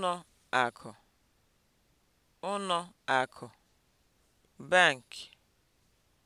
Ụnọ akụ, Ụnọ akụ, bank